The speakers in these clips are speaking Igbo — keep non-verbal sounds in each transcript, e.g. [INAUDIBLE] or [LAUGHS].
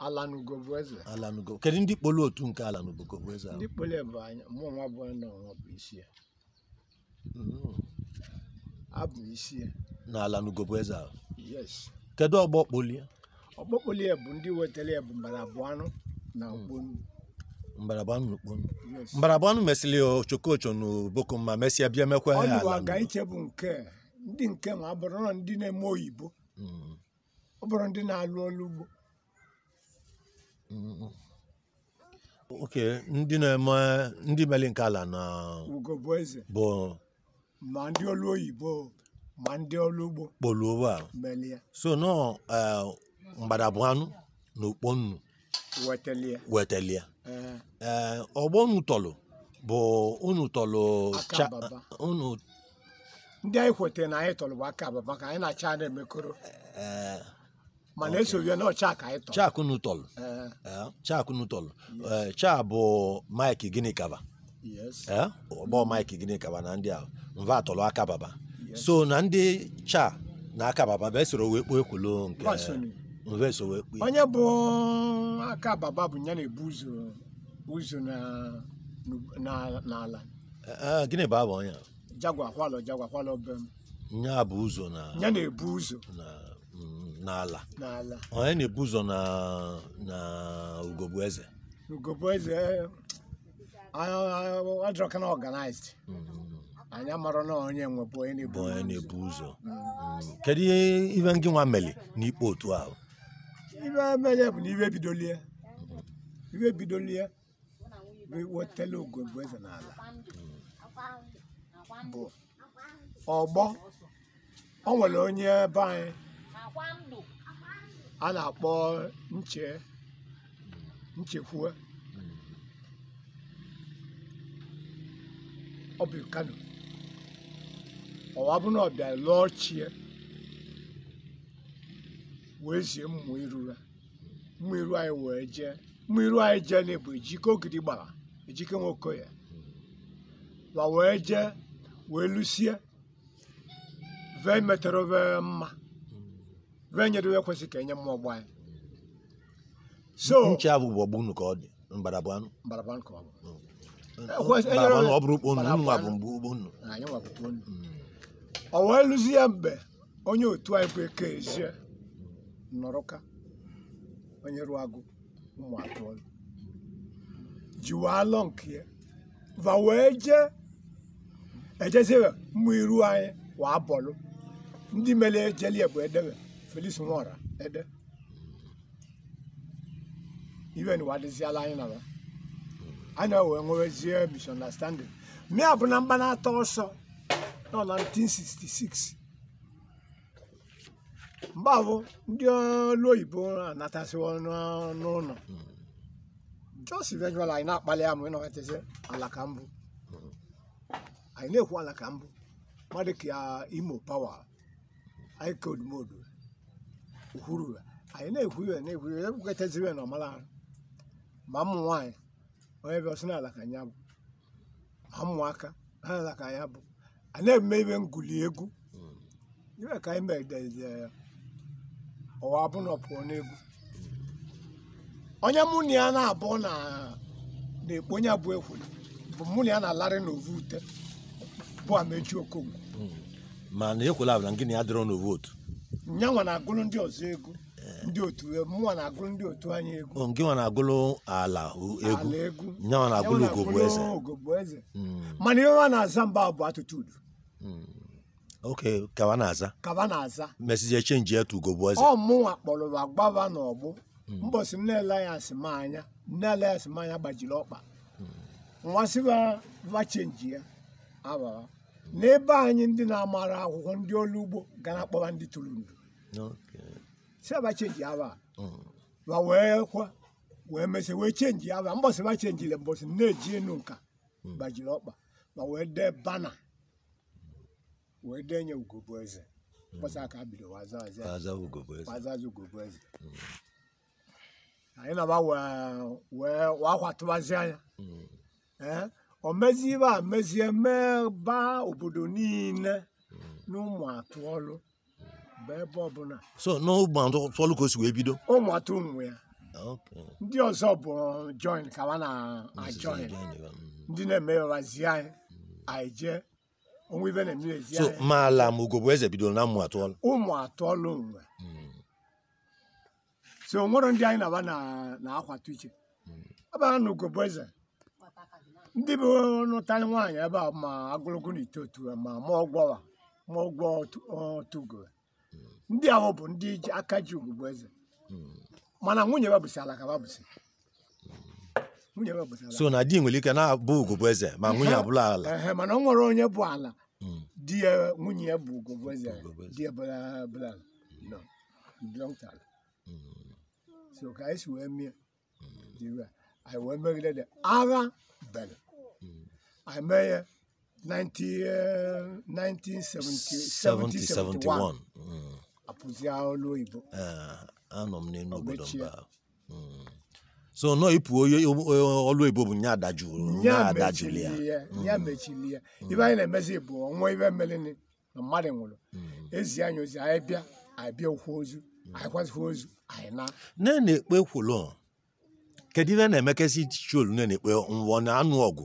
Alan Ugo bụ eze. kedu ndị kpolu otu nke Alan bụ eze ahụ? Ndị anyị mụ nọ isi Abụ hmm. isi Na bụ eze ahụ? Kedu ọgbọ kpolie? Ọgbọ bụ ndị wetara ya bụ hmm. na Okponu. na mesịrị Ochokocho na mesịa bịa mekwa ya Ọnụ aga nke ndị nke ma ndị na-eme oyibo. Hmm. ụbọrọ ndị na-alụ ọrụ ugbo oke ndị na-eme ndị mere nke ala na ugo bụ eze bụ ma ndị ọrụ oyibo ma ndị ọrụ ugbo kpọrọ ụwa so nọ e, mgbadabụ anụ na okpo nnu wetelia eh. e, ọgbọ unu tọlụ bụ unu tọlụ unu ndị anyị kwetara na anyị tọlụ bụ aka ababa ka anyị na-acha na-emekọrọ eh, mana esoghị na ọcha ka anyị tọrọ chak unu tọrọ eh. eh, chak unu tọrọ eh, cha bụ Mike Ginikaba ọgbọ Mike Ginikaba na ndị a mva atọrọ aka baba so na ndị cha na aka baba bụ esoro wee kpoo ekwulo nke mva eso wee kpoo onye bụ aka baba bụ ya na-ebu ụzọ ụzọ n'ala gịnị bụ abụ onye jagwa kwalọ jagwa kwalọ be m nya bụ ụzọ na ya na-ebu ụzọ n'ala onye na-ebu ụzọ na ugogbu eze ugogbu eze adrọka na ọganized eh, mm-hmm. anyị amara na onye nwebụ onye na-ebu ụzọ mm. mm-hmm. kedu ihe ibe ngị nwa meli n'ikpe otu ahụ ibe meli bụ na ibe bidolie ibe bidolie bụ wetala ugogbu eze n'ala mm-hmm. bụ ọgbọ o nwere onye be anyị a na-akpọ nche nchekwue ọ bụ kano ọwa bụ na lụọ chie wee zie mmụ iru ya mmụ iru anyị wee jee mmụ iru anyị jee na bụ ejike ogidi gbara ejike nwoke ya ma wee jee wee lụsie vee metere vee mma nye ya kwesịrị ka enye mmụọ ọgbọ anyị nche ka ọ dị mbarabụ bụ anụ bụ bụ ya mgbe onye otu anyị bụ eke ezie nọrọka onye ruo agụ ụmụ atọ alọ nke ya va wee jee ejezie iru anyị wa ndị mere bụ Felix Nwora ede iwe na ụwa anyị na anya wee nwerezie misunderstanding mia bụ na mgbanata ọsọ nọ na 1966 mgbe ahụ ndị ọrụ oyibo anatasị n'ụlọ jos vejual anyị na-akpali ya ma ị nọghatazi eh, ala mbụ anyị na-ekwu ala ka mbụ mmadụ uh, imo pawa anyị kod modu kwuru anyị na ya na-ekwuru ya ekwukọtaziri ya na ọmara ahụ ma ụmụ nwaanyị onye bịa ọsọ n'ala ka anya bụ ma ka anya bụ a na-eme ibe ngụli egwu ibe ka anyị medezie ya ọwa abụna pụọ n'egwu onye mụ na ya na-abụ na-ekpo onye bụ ekwuru bụ mụ na ya na-alarị n'ovu ute bụ amechi okonkwo mana ekwela abụla gịnị ya dịrọ n'ovu otu nyanwa na-agụrụ ndị ọzọ egwu ndị otu mụnwa na-agụrụ ndị otu anyị egwu oh, nke nwa na-agụrụ ala egwu nyanwa na-agụrụ ogogbo eze hmm. mana ihe nwa na-aza mba bụ atụtụdu hmm. ok kaba na-aza kaba na-aza mesizie chenji ya tu ugogbo eze ọ mụnwa kpọrọ agbawa n'ọgbụ hmm. mbọsị m na-ele ya asị m anya nne ya asị m anya gbajiri ọkpa nwa sịba va chenji ya awa n'ebe anyị ndị na-amara akwụkwọ ndị ọrụ ugbo ga na-akpọba ndị tụrụ ndụ si aba chenji aba ma wee kwa wee mesị wee chenji aba mbọsị ba chenjiri mbọsị na-eji enu nka mm. gbajiri ọkpa ma wee dee bana wee nye denye ugobueze mbọsị mm. aka bido wazaza ugobueze anyị na-aba wee wakwatụbazi anya mm. eh? ọmezibe amezie meba obodo niile n'ụmụ atụ ọlụ bụ ebe ọbụla so n'ụmụ atụ ọlụ ka o si wee bido ụmụ atụ ụmụ ya ndị ọzọ bụ uh, join ka na-ajoin uh, ndị mm. na-emeghazi anyị anyị jee onwe ibe na-eme ezi anyị ma ala ma ugo bụ eze bidoro na ụmụ atụ ọlụ ụmụ atụ ọlụ nwe mm. so nwere ndị anyị na-aba na-akwatu iche abara mm. na ugo bụ eze ndị bụ nụtarị nwaanyị ebe a ma agụlụgụ na ma mụọ ndị ahụ bụ ndị ji aka ji eze mana nwunye alaka so na di nwere ike na-abụ eze ma nwunye abụla ala mana ọ nwere onye bụ ala hmm. di ya nwunye bụ ugwu eze di ya bụla ka anyị si wee mie hmm. agha bere I met 90, 1971 apụzi olu Igbo eh, anọ mm. so nọ ịpụ onye bụ nye adajụrụ ya ya mm. mm. ibe anyị na-emezi bụ ọnwa ibe na nwụrụ ezi anyị ozi anyị bịa anyị bịa ozu anyị ozu na nne na-ekpe kwụlọ kedu na na-ekpe nwụọ na anụ ọgụ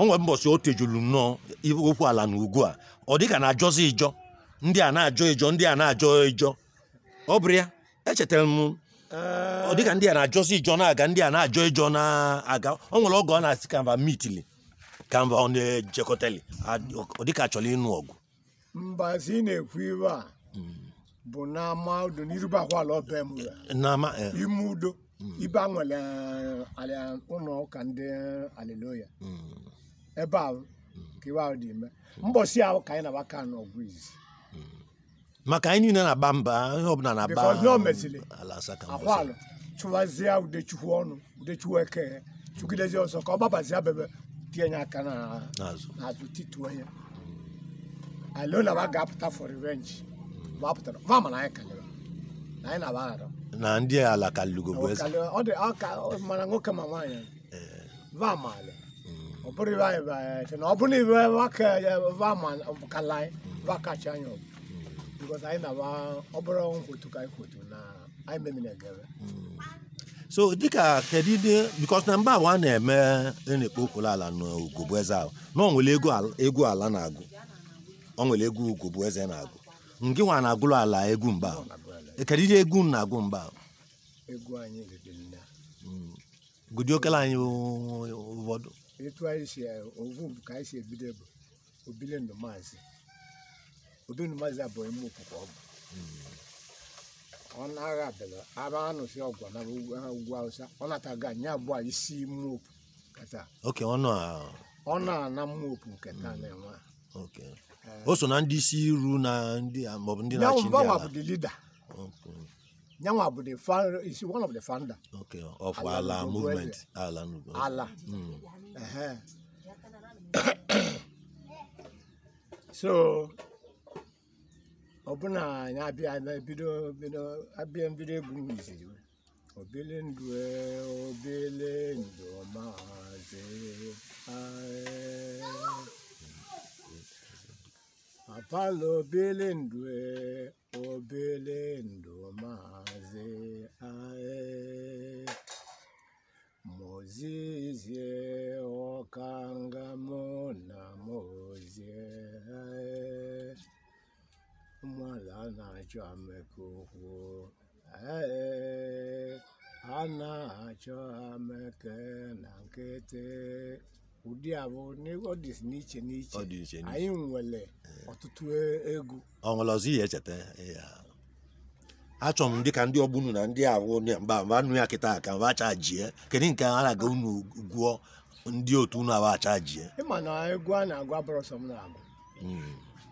o nwere mbọsị o tejuru nnọọ okwu ala na ugwu a ọ dịka na ajọzi ịjọ ndị a na-ajọ ịjọ ndị a na-ajọ ịjọ ọ bụrụ ya echetara m ọ dịka ndị a na-ajọzi ịjọ na-aga ndị a na-ajọ ịjọ na-aga ọ nwere ọgụ ọ na-asị kanva mitili kanva ọ na-ejekọtali ọ dịka achọrọ ịnụ ọgụ mbazi na-ekwu iwe a bụ n'ama udo n'irubakwala ọba e. ime udo ibe e, a nwere ụlọ ụka ndị aliloya ebe ahụ ka iwe ahụ dị ime mbọsi ahụ ka anyị na-agbaka n'ọgụ izi maka anyị niile na-agba mba ọbụla na-agba ala akwalụ chụwazie udechukwu ọnụ udechukwu eke ka ọ gbabazie bebe tinye aka n'azụ tituo onye alona ba ga-apụta for revenge anyị na anyị na-agba na ndị ala mana nwoke ma nwaanyị eh. ọ bụrụ ọbụrụ na ọ bụrụ iwe nwoke wakala wakachi anya because anyị na ọ bụrụ nkwotu ka anyị kwotu na anyị memiri egere so dịka kedu ihe because na mba awa na-eme na-ekpo okporo ala na eze ahụ na onwere egwu ala na-agụ onwere egwu ugogbu eze na-agụ ngị nwa na-agụrụ ala egwu mgba kedu ihe egwu na-agụ mgba gụdị okele anyị ụfọdụ etu anyị si eh, ovu bụ ka anyị si ebido bụ obilendu maazị obilendu maazị abụghị mma okwukwe ọ bụ ọnụ agha bịara aba anụsị ọgwụ na ugwu awụsa ọ nataga anyị abụọ isi mmopu kata oke ọnụ a ọnụ a na mmopu nke taa hmm. na-enwe oke eh. o so na ndị isi iru na ndị maọbụ ndị na-achị ndị ala bụ the leader nyanwa bụ the one of the founder okay of ala movement ala ala hmm. [COUGHS] so ọbụna anyị abịa bido bido abịa mbido egwu miziri obele ndụ e, obele ndụ maazị apala obele ndụ e, obele ndụ maazị achọme ka kwuo ee a na-achọ ameke na nkịtị ụdị a bụ ọ dị n'iche n'iche anyị nwere ọtụtụ e, egwu ọnwere ọzọ ihe echeta e, ya achọ m dịka ndị ọgbunu na ndị awụ mba mba nụ ya kịta ka mba acha jie kedu nke a na-aga unu gwụọ ndị otu unu awa acha jie ịma na egwu a na-agwa brọsọ m na-agụ hmm.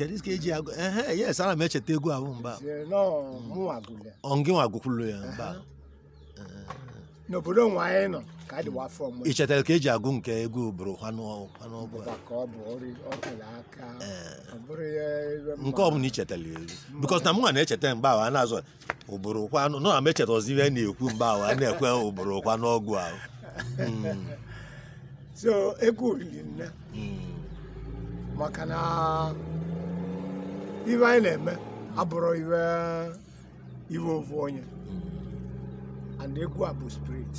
kedu ka eji agụ ehe yes ana m echeta egwu ahụ mgba ọngịnwa gụkwulu ya mba. n'obodo nwa anyị nọ ka a dịwa afọ mgbe ichetara ka eji agụ nke egwu bụrụ nke ọ bụla ichetara elu bikos na mụnwa na-echeta mgba ahụ a na-azụ ụbụrụ kwanụ nọ na m echetazi ihe na-ekwu mgba ahụ a na-ekwe ụbụrụ kwa n'ọgwụ ahụ hmm. so egwu olili nne hmm. maka na ihe anyị na-eme abụrụ iwe iwe ofu onye and egwu a bụ spirit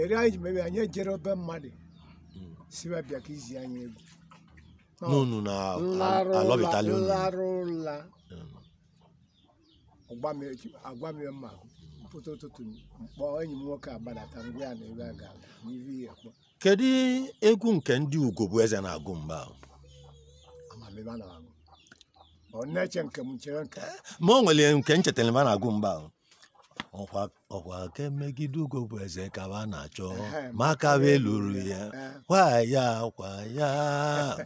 eri anyị ji mebe anyị ejere obe mmadụ siwe bịa ka izi anyị egwu n'unu na alọbitali unu larụ ụla agwa m e, mma pụta ụtụtụ mkpọ enyi m nwoke agbadata ngwa ya na ebe a ga n'ihe kpọ kedu egwu nke ndị ugo bụ eze na-agụ mgbe ma mebe nke m chere nke ma o nwere nke nchetara eh, eh. mbe a na-agụ mgbe ahụ ọkwa ka megide ugo bụ eze ka a na-achọ maka wee lụrụ ya kwa ya kwa ya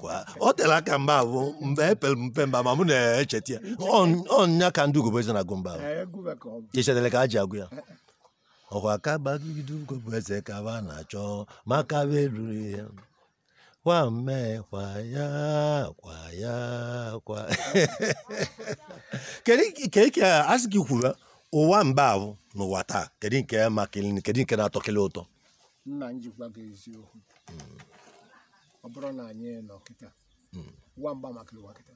kwa o tere aka mba bụ mgbe epere mpe mba ma mụ na-echeta ya ọnya ka ndị ugo bụ eze na-agụ mgbe ahụ echetara ka a ji agụ ya ọkwa eh, ka gbagide ugo bụ eze ka na-achọ maka wee lụrụ ya Kwame kwa ya kwa [LAUGHS] kedu nke a sị gị kwuru ụwa mba ahụ n'ụwa taa kedu nke kedu nke na-atọkele ụtọ nna m jikwa gị eziokwu hmm. ọ bụrụ na anyị nọ kịta ụwa hmm. mba makịrị ụwa kịta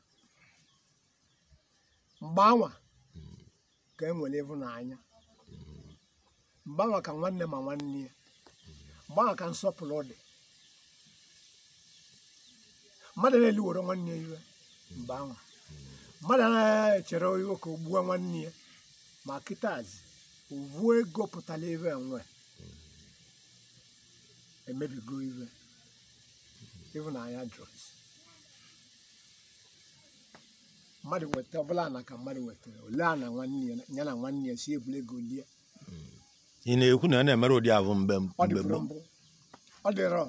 mgbanwa hmm. ka e nwere ịhụnanya mgbanwa ka nwanne ma nwanne ya mgbanwa ka nsọpụrụ dị mmadụ na-eliwere nwanne ya iwe mgbe anwa mmadụ na echere iwe ka o nwanne ya ma kịtazi ovuo ego pụtara ebe nwe emebigo iwe ịhụnanya drugs mmadụ weta ọbụla na ka mmadụ wetara ole a na nwanne ya na nwanne ya si ebule ego lie ị na-ekwu na ya na-emere ụdị ahụ mgbe ọ dịrọ